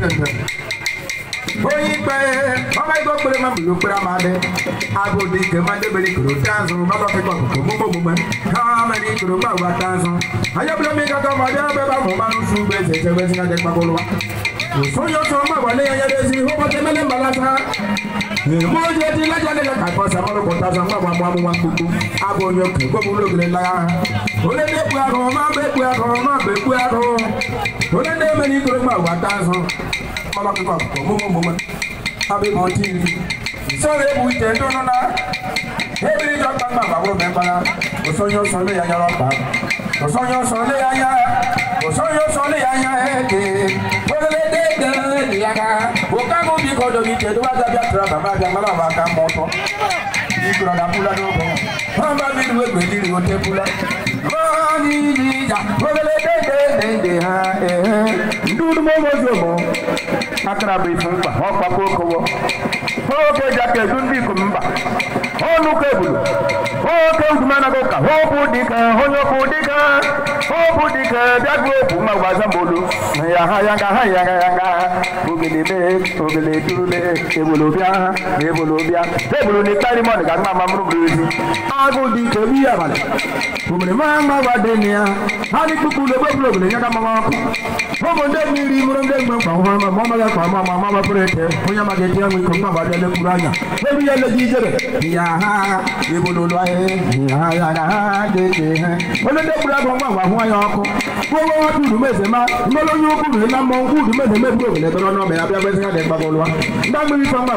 gbẹ̀gbẹ̀. Oyin pẹ́ ọmọ igbó péré máa bùlù péré máa bẹ. Agodi ìkè máa débèrè kòrò tánzù bábà fi kọ̀ kòkò mú gbogbo mẹ́. Káàmẹ́ ní kòrò máa wà tánzù. Ayébúlé mi kankan ọmọ bí abẹ́ bá mọ̀ máa ń sún gbé ṣẹ̀ṣẹ̀ bẹ́ẹ̀ sí kájẹ́ pàkó lọ́wọ́. Sọ́yọ́ sọ ọmọ wà lẹ́yìn ayẹyẹ sí i, ó bọ́ tẹ́mẹ́lẹ́ mbalasa. Mo jẹ́ ti lájà lẹ́yìn kakọ́ sàmọ́lọ́kọ̀ tazà ń gbàgbọ́ àmọ́ àwọn gbogbo. Abo yọ kẹ́ gbọ́dọ̀ lóògùn lẹ́la. Olé dé pé àrùn, má bẹ́ pé àrùn, má bẹ́ pé àrùn nítorí pé àwọn àtàzán mọ́lọ́kíkọ̀ pọ̀ mọ́mọ́mọ́mọ́ abẹ́mọ́ tí ìlú sọ́ọ̀rọ̀ èbù ìjẹ́ dúnú náà ebi níjọ́ gbàgbà bàbá òbẹ̀ mbala òsóyún sọ lé yanya lọ́pàá òsóyún sọ lé yanya òsóyún sọ lé yanya ẹ̀ẹ́dẹ̀ olólédè dẹ́rẹ́ nìyàká òkàgùn bí kò dòbí tẹ̀ dúwà dàbí àtúrà bàbá àbí àmàlà wà ká mọ́ tọ́ ìgbìrọ̀ dàbúlà ní ọkọ̀ wọn bá mi lu egbèdì rè ó tẹ́ búlà. bọ́ọ̀ ní ìjà olólédè. ime ozi ụmụ akara bụ ifu mkpa ọkpakọ okowo oke ji aka edu ndị ikom mba nnukwu ebulu oke ugwu anaghị ụka hụ ọkụ dịka onye ọkụ dịka ku di ke dagu bu ma wasa bolu ya ha ya ga ha ya ga ya ga ogele be ogele durule ebolo bia ebolo bia ebolo ni tari mo ni ka ma ma muru bi agu di ke bi ya bale ku me ma ma wa de ni ya ha ni ku ku le bo blo blo ya ga ma ma ku mo mo de mi ri muru de gbe pa ma ma ma ga pa ma ma ma ba pere te onya ma ge ti ya mi ko ma ba de le kuranya ebi ya le ji jebe ya ha ebolo lo aye ya ya ga ha de de kura ko ma wa fun ayo ọkụ nwewe udumezema mmelụ onye ukwu riri na mmọnwụ udumezeme bụ obodo ebe abịa gbezi ha dị mkpagolụwa ndị agbịrịta mgba